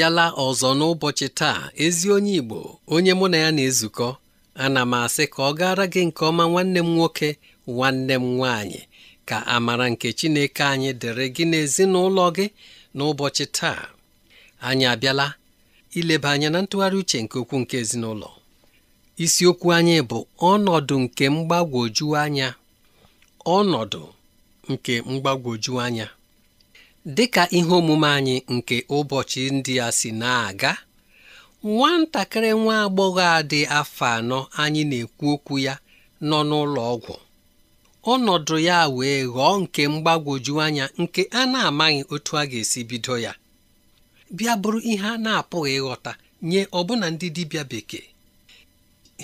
abịala ọzọ n'ụbọchị taa ezi onye Igbo onye mụ na ya na-ezukọ ana m asị ka ọ gaara gị nke ọma nwanne m nwoke nwanne m nwanyị ka amara nke Chineke anyị dịrị gị n'ezinụlọ gị n'ụbọchị taa anyị abịala ileba anya na ntụgharị uche nke okwu nke ezinụlọ isiokwu anyị bụ ọnọdụ nke mgbagwoju anya ọnọdụ nke mgbagwoju anya dịka ihe omume anyị nke ụbọchị ndị a si na-aga nwatakịrị nwa agbọghọ a dị afọ anọ anyị na-ekwu okwu ya nọ n'ụlọ ọgwụ ọnọdụ ya wee ghọọ nke mgbagwoju anya nke a na-amaghị otu a ga-esi bido ya bịa bụrụ ihe a na-apụghị ịghọta nye ọbụna ndị dibịa bekee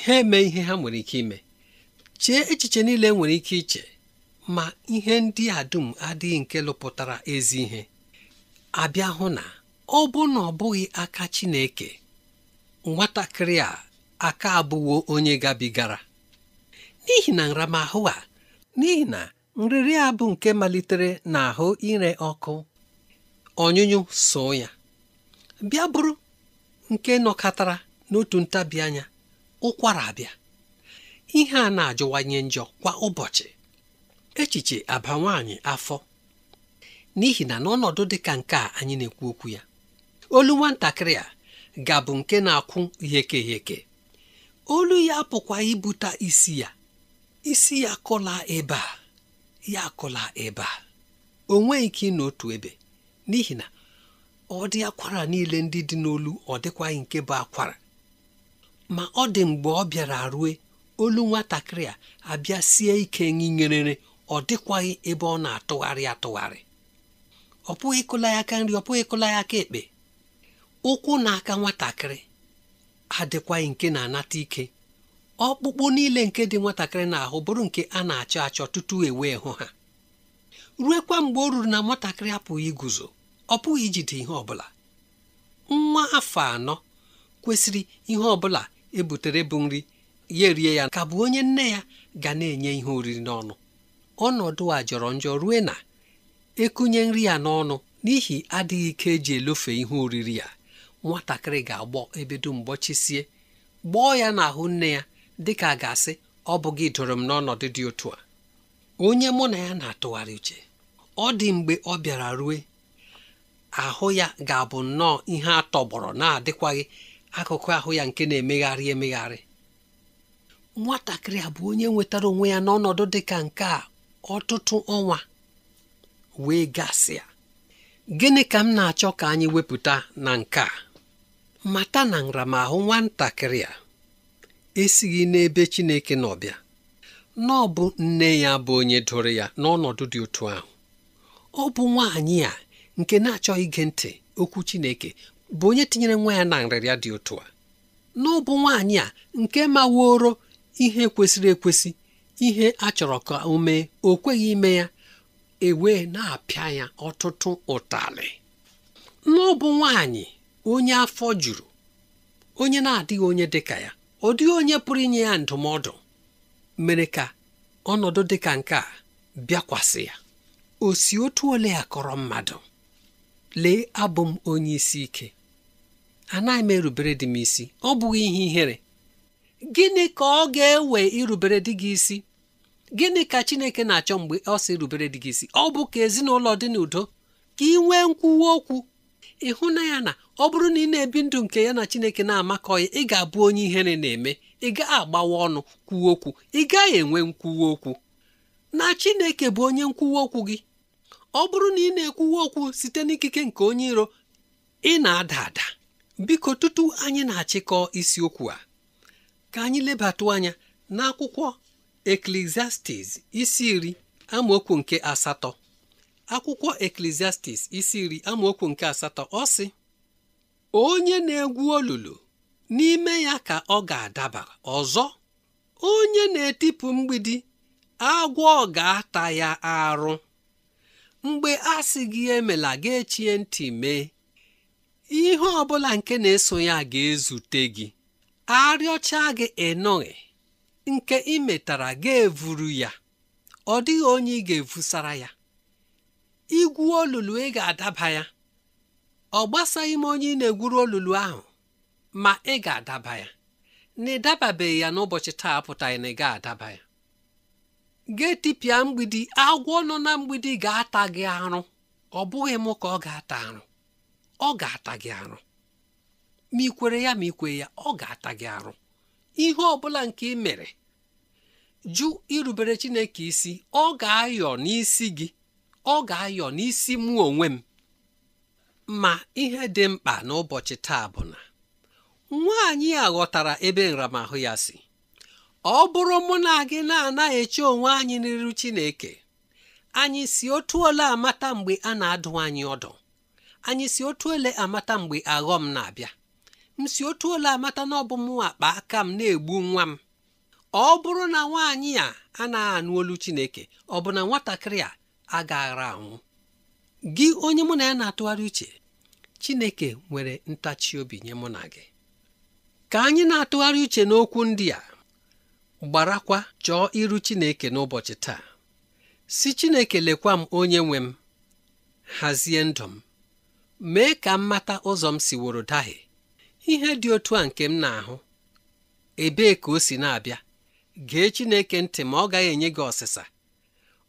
ha eme ihe ha nwere ike ime chee echiche niile nwere ike iche ma ihe ndị a dum adịghị nke lụpụtara ezi ihe abịa hụ na ọ bụ na ọ bụghị aka Chineke nwatakịrị a aka abụwo onye gabigara n'ihi na nramahụ a n'ihi na nrịrị a bụ nke malitere n'ahụ ire ọkụ ọnyụnyụ so ya bịa bụrụ nke nọkọtara n'otu ntabi anya ụkwara abịa ihe a na-ajọwanye njọ kwa ụbọchị echiche aba nwaanyị afọ n'ihi na n'ọnọdụ dị ka nke a anyị na-ekwu okwu ya olu nwatakịrị a ga-abụ nke na-akwụ yeke yeke olu ya apụkwa ibute isi ya isi ya kọla ebe a ya akọla ebe a o nweghị ike n'otu ebe n'ihi na ọ dị akwara niile ndị dị n'olu ọ dịkwaghị nke bụ akwara ma ọ dị mgbe ọ bịara rue olu nwatakịrị a abịa sie ike nyinyerere ọ dịkwaghị ebe ọ na-atụgharị atụgharị ọ pụghị ịkụla ya aka nri ọ pụghị ịkụla ya aka ekpe ụkwụ na aka nwatakịrị adịkwaghị nke na-anata ike ọkpụkpụ niile nke dị nwatakịrị n'ahụ bụrụ nke a na-achọ achọ tutu ewee hụ ha ruekwa mgbe o ruru na nwatakịrị apụghị iguzo ọ pụghị ijide ihe ọbụla nwa afọ anọ kwesịrị ihe ọbụla ebutere bụ nri ya erie ya ka bụ onye nne ya ga na-enye ihe oriri n'ọnụ ọnọdụ a jọrọ njọ rue na ekunye nri ya n'ọnụ n'ihi adịghị ike eji elofe ihe oriri ya nwatakịrị ga-agbọ ebedo dum gbọọ ya n'ahụ nne ya dịka a ga-asị ọ bụghị dụrụ m n'ọnọdụ dị otu a onye mụ na ya na-atụgharị uche ọ dị mgbe ọ bịara rue ahụ ya ga-abụ nnọọ ihe atọgbọrọ na-adịkwaghị akụkụ ahụ ya nke na-emegharị emegharị nwatakịrị a bụ onye nwetara onwe ya n'ọnọdụ dị ka nke a ọtụtụ ọnwa wee gasịa gịnị ka m na-achọ ka anyị wepụta na nke a mata na nramahụ nwatakịrị a esighị n'ebe Chineke n'ọbịa n'ọbụ nne ya bụ onye doro ya n'ọnọdụ dị otu ahụ ọ bụ nwaanyị a nke na achọ ige ntị okwu Chineke bụ onye tinyere nwa ya na nrịrịa dị otu a N'ọbụ nwaanyị a nke maworo ihe kwesịrị ekwesị ihe a chọrọ ka o mee o kweghị ime ya ewee na-apịa ya ọtụtụ ụtalị n'ọbụ nwanyị onye afọ juru onye na-adịghị onye dịka ya ọ dịghị onye pụrụ inye ya ndụmọdụ mere ka ọnọdụ dịka nke a bịakwasị ya o si otu ole ya kọrọ mmadụ lee abụ m onye isi ike anaghị m erubere dị m isi ọ bụghị ihe ihere gịnị ka ọ ga-ewe irubere di gị isi gịnị ka chineke na-achọ mgbe ọ sị irubere di gị isi ọ bụ ka ezinụlọ dị n'udo ka ị nwee nkwuwa okwu ịhụ na ya na ọ bụrụ na ị na-ebi ndụ nke ya na chineke na-amakọ ya ị ga-abụ onye ihere na-eme ị gaghị agbawa ọnụ kwuwa okwu ị gaghị enwe nkwuwa okwu na chineke bụ onye nkwuwa okwu gị ọ bụrụ na ị na ekwuwe okwu site n'ikike nke onye iro ị na-ada ada biko tutu anyị na-achịkọ isiokwu a ka anyị lebatụ anya n'akwụkwọ eklesiastis isi iri amaokwu nke asatọ akwụkwọ eklesiastis isi iri amaokwu nke asatọ ọ sị onye na-egwu olulu n'ime ya ka ọ ga-adaba ọzọ onye na-etipụ mgbidi agwọ ga-ata ya arụ mgbe a sị gị emela ga-echie ntị mee ihe ọ bụla nke na-eso ya ga-ezute gị arịọcha gị ịnụghị nke imetara ga-evuru ya ọ dịghị onye ị ga-evusara ya igwu olulu ị ga-adaba ya ọ gbasaghị m onye ị na-egwuru olulu ahụ ma ị ga-adaba ya na ị dababeghị ya n'ụbọchị taa pụtaghị na ị ga-adaba ya ga-etipịa mgbidi agwọ nọ na mgbidi ga-ata gị arụ ọ bụghị m ka ọ ga-ata arụ ọ ga-ata gị arụ ma ị kwere ya ma ị kwere ya ọ ga-ata gị arụ ihe ọ bụla nke ị mere jụ irubere chineke isi ọ ga-ayọ n'isi gị ọ ga-ayọ n'isi mụ onwe m ma ihe dị mkpa n'ụbọchị taa bụ na nwaanyị a ghọtara ebe nramahụ ya si ọ bụrụ mụ na gị na-anaghị eche onwe anyị n'iru chineke anyị si otu ole amata mgbe a na-adụ anyị ọdụ anyị si otu ole amata mgbe aghọm na-abịa m si otu ụlọ amata na ọbụ m akpa aka m na-egbu nwa m ọ bụrụ na nwaanyị a na anụ olu chineke ọ bụ na nwatakịrị a agaghara anwụ gị onye mụ na ya na-atụgharị uche chineke nwere ntachi obi nye mụ na gị ka anyị na-atụgharị uche n'okwu ndị a gbarakwa chọọ iru chineke n'ụbọchị taa si chineke lekwa m onye nwe m hazie ndụ m mee ka m ụzọ m siworo dahie ihe dị otu a nke m na-ahụ ebee ka o si na-abịa gee Chineke ntị ma ọ gaghị enye gị ọsịsa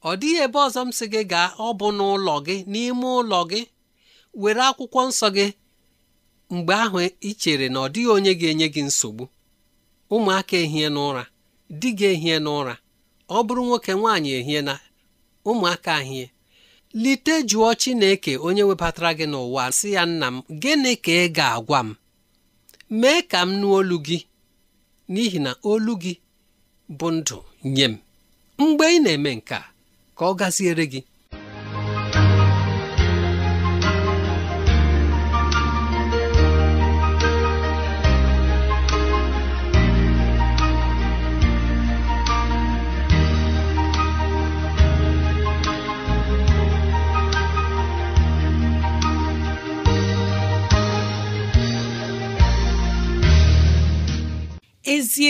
ọ dịghị ebe ọzọ m si gị gaa ọ bụ n'ụlọ gị n'ime ụlọ gị were akwụkwọ nsọ gị mgbe ahụ ị chere na ọ dịghị onye ga-enye gị nsogbu ụmụaka ehie n'ụra di gị ehie n'ụra ọ bụrụ nwoke nwaanyị ehie na ụmụaka ahie lite jụọ Chineke onye webatara gị n'ụwa sị ya nna m gịnị ka ị ga-agwa m mee ka m nụ olu gị n'ihi na olu gị bụ ndụ nye m mgbe ị na-eme nke a ka ọ gaziere gị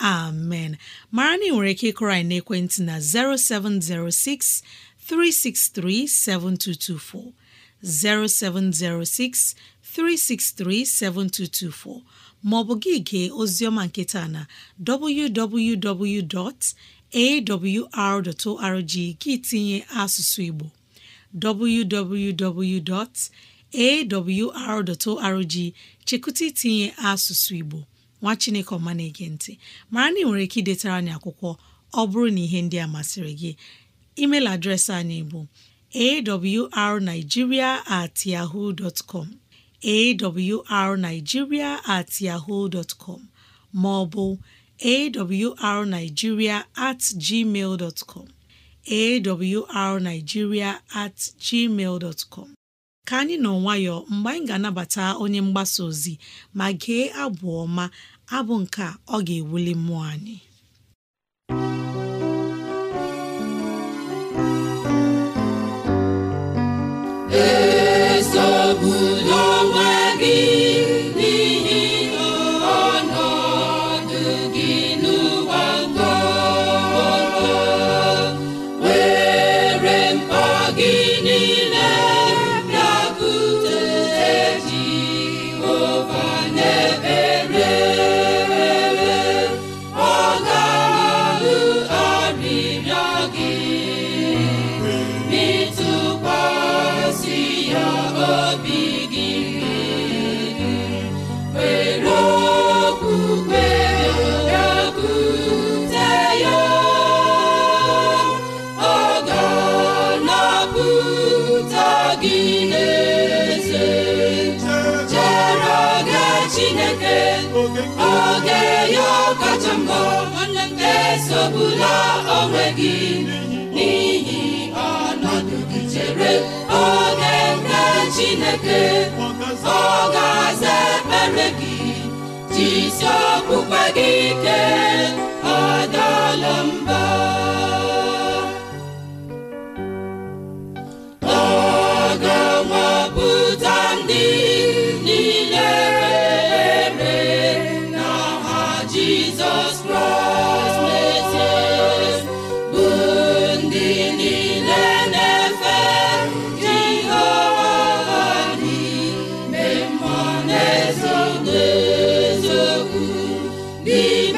amen mara na ị nwere ike ịkụrọ anyị n'ekwentị na 0706 363 7224 0706 363 7224 ma ọ bụ gị gee oziọma nketa na www.awr.org gị tinye asụsụ Igbo www.awr.org chekụta tinye asụsụ Igbo nwa chineke ọma na-ege ntị mara na ị nwere ike idetara anyị akwụkwọ ọ bụrụ na ihe ndị a masịrị gị emeil adreesị anyị bụ arigiria at at com ma ọ bụ at gmail com at gmail ka anyị nọ nwayọọ mgbe anyị ga-anabata onye mgbasa ozi ma gee abụ ọma abụ nke ọ ga-ewuli mmụọ anyị ngo nwanne onwe gị n'ihi ọnọdụ gị chere oge nke Chineke ọ ga-aza ekpere gị jisi okpukpe gị ike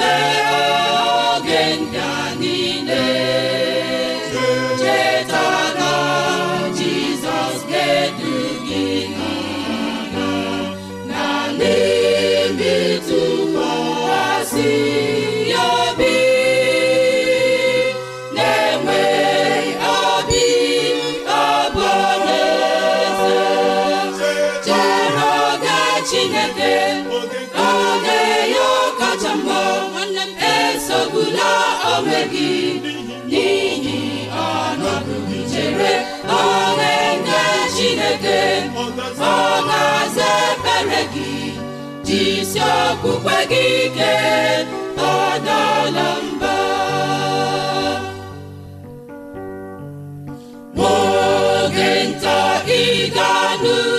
Amen. ọ ga-aza ebere gị jisi okpukpe gị ike adala mba n'oge nta ị ga-anụ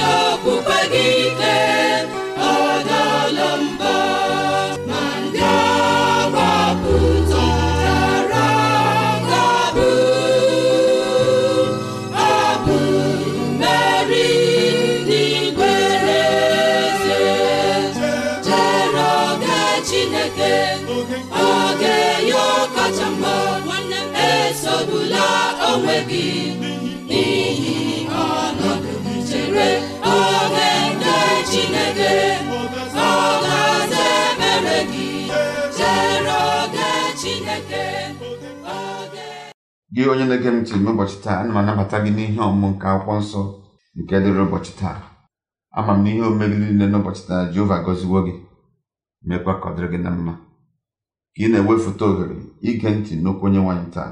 isi okpukpe gị ike gị onye na-ege ntị n'ụbọchị taa ana m anabata gị n'ihe ọmụmụ nke akwụkwọ nsọ nke dịrị ụbọchị taa ama m n'ihe omegị niile n'ụbọchị taa Jehova gọziwo gị mekwa ka ọ dịrị gị na mma ka ị na-ewefụta ohere ige ntị n'okwu onye nwaanyị taa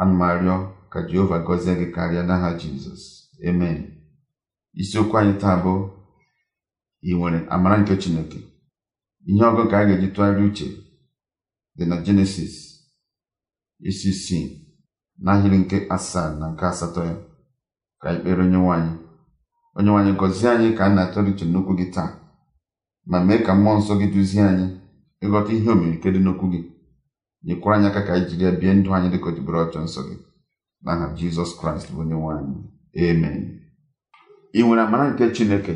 ana m arịọ ka Jehova gọzie gị karịa n'aha Jizọs amen isiokwu anyị taa bụ ị nwere amara nke Chineke ihe ọgụ ka a ga-eji tụgharị uche dị na jenesis isi isii n'ahịrị nke asaa na nke asatọ ya ka anyị kpere onye anyị Onye anyị gọzie anyị ka a na-atọrọ uche n'okwu gị taa ma mee ka mmụọ nsọ gị duzie anyị ịghọta ihe omirike dị n'okwu gị nyekwara anyị aka ka anyị jiri ya bie ndụ anyị dịka ojibere ọchọ nsọ gị aha jizọs kraịst bụ onye nwaanyị Emen. ị nwere amara nke chineke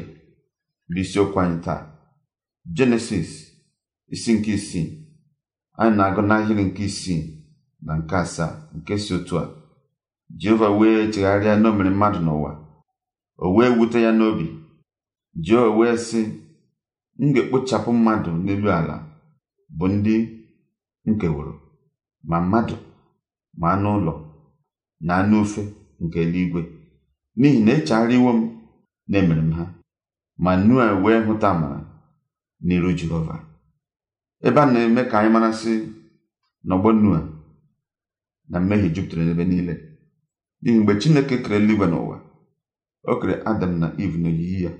bụ isiokwu anyị taa jenesis isi nke isii anyị na-agụ n'ahịrị nke isii na nke asaa nke si otu a jehova wee chegharịa n'omere mmadụ n'ụwa o wee wute ya n'obi jehova wee sị m ga-ekpochapụ mmadụ n'elu ala bụ ndị nkeworo ma mmadụ ma anụ ụlọ na anụ ofe nke eluigwe n'ihi na iwo e m na-emere m ha ma nua wee hụta amara n'iru jehova ebe a na-eme ka anyị marasị n'ọgbọ Noa na mmehie jupụtara n'ebe niile n'ihi mgbe Chineke kere eluigwe n'ụwa o kere Adam na Eve n'oyiyi ya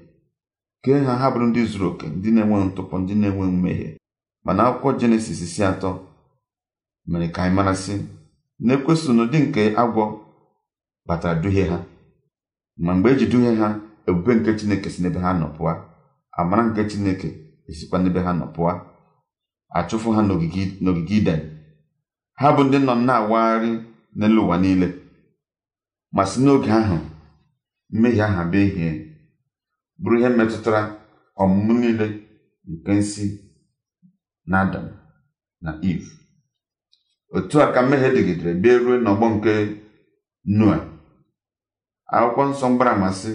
kee ha ha bụrụ ndị zuru oke ndị na-enweghị ntụpọ ndị na-enwe mmehie mana akwụkwọ Jenesis isi atọ mere ka anyị marasị na na n'ụdị nke agwọ batara duhie ha ma mgbe eji duhie ha ebube nke Chineke si n'ebe ha nọ pụa amara nke Chineke esikwa n'ebe ha nọ pụọ achụfụ ha n'ogige iden ha bụ ndị nọ na-awagharị n'elu ụwa niile ma si n'oge ahụ mmehie aha bịa ihe bụrụ ihe metụtara ọmụmụ niile nke nsi na na Iv otu a ka mmehie dịgidere bịa ruo n'ọgbọ nke Noa akwụkwọ nsọ mgbara amasị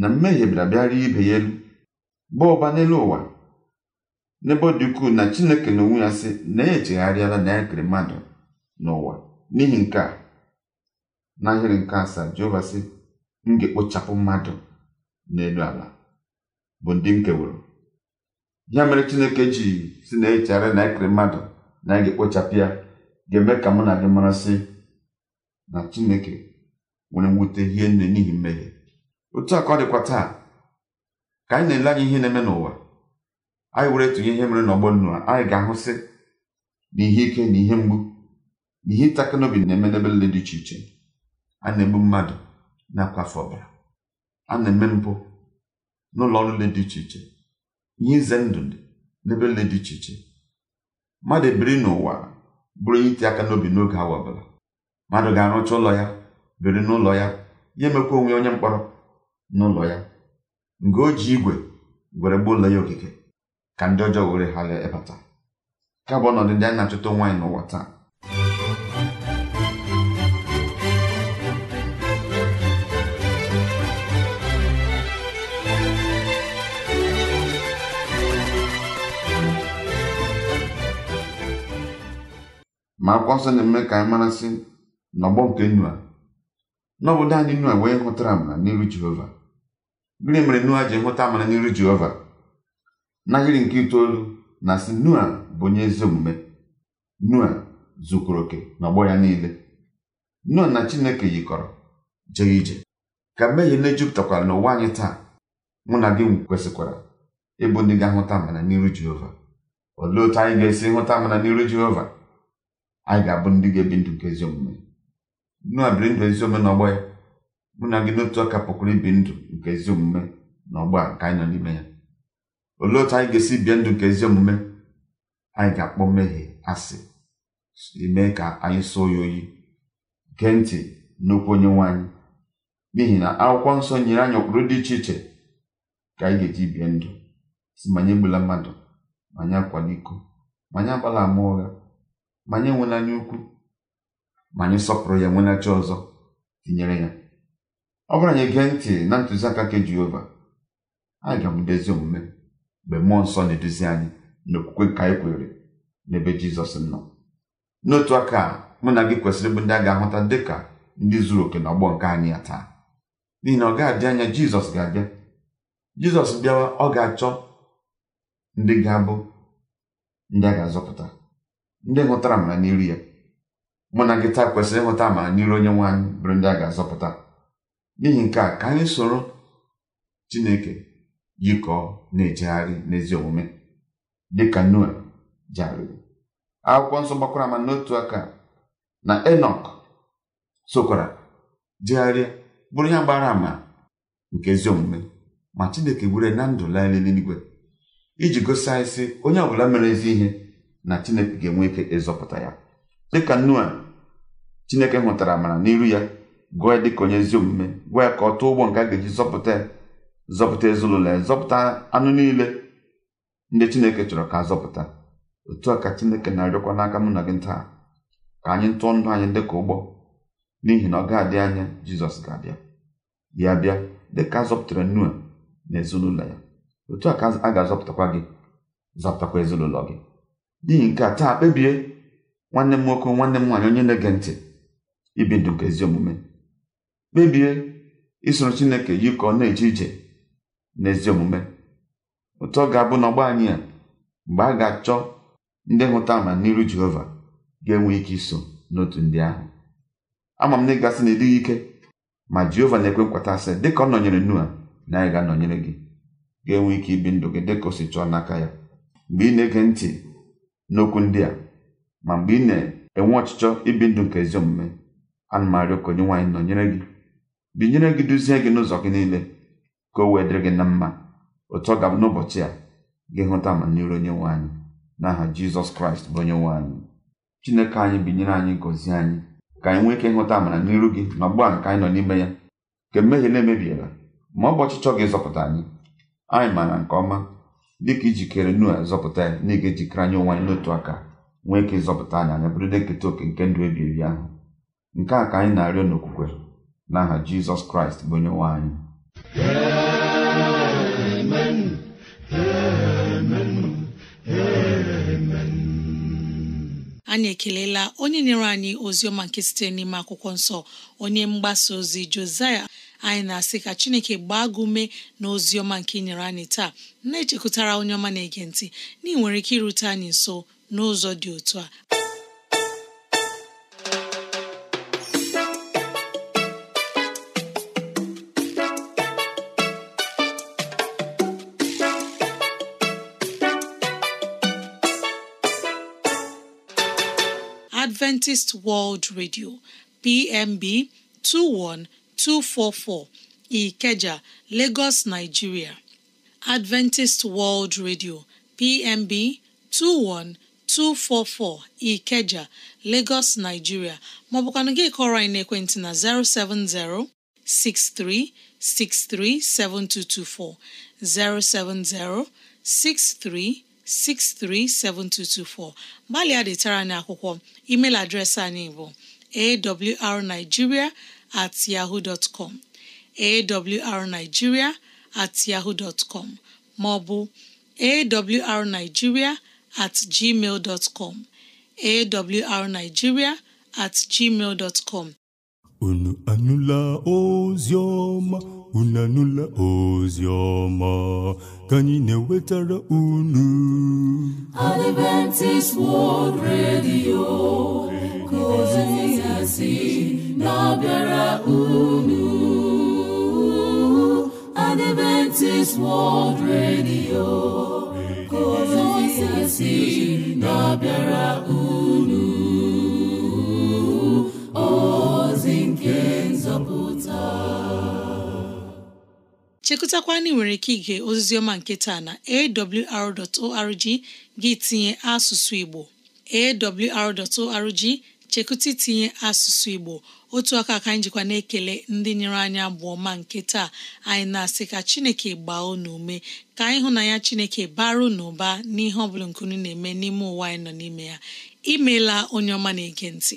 na mmehie bịara bịara ibe ya elu baa ụba n'elu ụwa n'ebe ọ dị ukwuu na chineke na onwe ya sị na ya e echegharịala na ya e kere mmadụ n'ụwa n'ihi nke a n'ahịrị nke asaa jehova sị m ga-ekpochapụ mmadụ n'elu ala bụ ndị nkewuru ya mere chineke ji si na echegharịa na ya e kere mmadụ na ya ga-ekpochapụ ya ga-eme ka mụ na gị mara sị na chineke nwere mwute ihe nne n'ihi mmehie otu a ọ dịkwa taa ka anyị na-ele anya ihe na-eme n'ụwa anyị were tụnye ihe mere n'ọgbọ nnu a anyị ga-ahụsị na ihe ike na ihe mgbu na ihe ịtakị n'obi na-eme n'ebe niile dị iche iche a na-egbu mmadụ na-akwafe ọbara a na-eme mpụ n'ụlọ ọrụ niile dị iche iche ihe ize ndụ n'ebe niile dị iche iche mmadụ ebiri n'ụwa bụrụ ihe iti aka n'obi n'oge awa ọbụla mmadụ ga-arụcha ụlọ ya biri n'ụlọ ya ya emekwa onwe onye mkpọrọ n'ụlọ ya nga o ji igwe gwere gbuo ụlọ ya okike ka ndị ọjọọ were ghara ịpata. ka bụ ọnọdụ ndị anyị na-achọta nwaanyị n'ụwa taa ma akwụkwọ nsọ na-eme ka anyị marasị n'ọgbọ nke Nua n'obodo anyị Nua wee hụtara amara n'iru Jehova gịnị mere Nua ji hụta amara n'iru Jehova n'ahịrị nke itoolu na si nua bụ onye ezi omume nua zukwuru oke n'ọgbọ ya niile nua na chineke yikọrọ jee ije ka mmehie na-ejupụtakwara n'ụwa anyị taa mụ na gị kwesịkwara ịbụ ndị ga-ahụta amara n'iru jehova olee otu anyị ga-esi hụta amara n'iru jehova anyị ga-abụ ndị ga-ebi ndụ nke ezi omume nua biri ndụ ezi omume n'ọgbọ ya mụ na gị n'otu ọka pụkwara ibi ndụ nke ezi omume n'ọgbọ a nke anyị nọ n'ime ya olee otu anyị ga-esi bie ndụ nke ezi omume anyị ga-akpọ mmehie asị ime ka anyị sụọ ya oyi gee ntị n'okwu onye nwe anyị n'ihi na akwụkwọ nsọ nyere anyị ụkpụrụ dị iche iche ka anyị ga-eji bie ndụ si ma anyị egbula mmadụ ma anyị akwala iko ma anyị agbala ama ụgha ma anyị enwela anya ukwu ma anyị sọpụrụ ya nwenachi ọzọ tinyere ya ọ bụrụ anyị gee ntị na ntụziaka nke Jehova anyị ga ezi omume mgbe mmụọ nsọ na-eduzi anyị n'okwukwe nke anyị kwenyere n'ebe jizọs nọ n'otu aka mụ na gị kwesịrị ịbụ ndị a ga-ahụta dị ka ndị zuru oke n'ọgbọ nke anyị ya taa n'ihi na ọ ga-adị anya jizọs ga-abịa jizọs bịawa ọ ga-achọ ndị ga-abụ ndị a ga-azọpụta ndị hụtara amara n'iru ya mụ na gị taa kwesịrị ịhụta amara n'iru onye nwaanyị bụrụ ndị a ga-azọpụta n'ihi nke a ka anyị soro chineke yikọọ na-ejegharị n'ezi omume dịka noa jegharịrị akwụkwọ nsọ gbakwara ama n'otu aka na enok sokwara jegharịa bụrụ ya gbara ama nke ezi omume ma chineke gwere na ndụ laa n'eluigwe iji gosi anyị sị onye ọbụla mere ezi ihe na chineke ga-enwe ike ịzọpụta ya dịka noa chineke hụtara amara n'iru ya gụọ ya dịka onye ezi omume gwa ya ka ọ tụọ ụgbọ nke a ga-eji zọpụta ya zọpụta ezinụlọ ya zọpụta anụ niile ndị chineke chọrọ ka zọpụta otu a ka chineke na-arịọkwa n'aka mụ na gị taa ka anyị tụọ ndụ anyị dị ka ụgbọ n'ihi na ọ ga-adị anya jizọs ga-abịa ya bịa dị ka a zọpụtara nua na ezinụlọ ya otu a ka a ga-azọpụtakwa gị zọpụtakwa ezinụlọ gị n'ihi nke a taa kpebie nwanne m nwoke nwanne m nwaanyị onye na-ege ntị ibi ndụ nke ezi omume kpebie isoro chineke yikọọ na-eje ije n'ezi omume ụtọ ga-abụ na anyị a mgbe a ga-achọ ndị hụta n'ihu jehova ga-enwe ike iso n'otu ndị ahụ ama m na ịgasị na ịdịghị ike ma jehova na-ekwe nkwata asị dịka ọ nọnyere nua na anyị ga-anọnyere gị ga-enwe ike ibi ndụ gị dịka o si chọọ n'aka ya mgbe ị na-ege ntị n'okwu ndị a ma mgbe ị na-enwe ọchịchọ ibi ndụ nke ezi omume ana m arịọ ka onye nwaanyị nọnyere gị binyere gị duzie gị n'ụzọ gị niile ka o wee dịrị gị na mma otu ọ ga n'ụbọchị a gị hụta amamiru onye nwe anyị n'aha jizọs kraịst bụ onye nwe anyị chineke anyị binyere anyị gọzie anyị ka anyị nwee ike ịhụta amara n'iru gị na ọgbụgba nke anyị nọ n'ime ya nke mmehie na-emebiela ma ọ bụ ọchịchọ gị zọpụta anyị anyị maara nke ọma dị ka ijikere nua zọpụta ya na ịga ejikere anyị onwe anyị n'otu aka nwee ike ịzọpụta anyị anya bụrụ ndị nketa oke nke ndụ ebi ebi ahụ nke a ka anyị na-arịọ n'okwukwe n'aha jizọs kraịst bụ onye nwe anyị anyị ekelela onye nyere anyị ozi ọma nke site n'ime akwụkwọ nsọ onye mgbasa ozi Josaya anyị na-asị ka Chineke gbaa gị na ọma nke nyere anyị taa na-echekụtara onye ọma na-ege ntị na ị nwere ike irute anyị nso n'ụzọ dị otu a Adventist World Radio PMB 21244 Ikeja, Lagos, Nigeria. Adventist World Radio PMB 21244 Ikeja, Lagos, Nigeria maọbụkwanụ gị kọrọ anyị n'ekwentị na 070 6363 7224 070 63 637224 gbalịa detara anyị akwụkwọ email adreesị anyị bụ awrnigeria at yahoo dot com awrnigeria at yahoo dot com ma ọ bụ awrnigeria at gmail dot com awrnigeria at gmail dot com unu anụla ozi ọma unu ozi ọma ka anyị na-ewetara unu Adventist World Radio ka ozi ya na-abịara unu Adventist World Radio ka ozi chekụtakwa na nwere ike ige oziziọma nke taa na awr.org gị tinye asụsụ Igbo awr.org chekụta itinye asụsụ Igbo otu aka ka anyị jikwa na-ekele ndị nyere anyị abụọ ma nke taa anyị na-asị ka Chineke gbaa unu ume ka anyị hụ na ya Chineke bara na ụba n'ihe ọ bụla nkunu na-eme n'ime ụwa anyị nọ n'ime ya imeela onye ọma na-ege ntị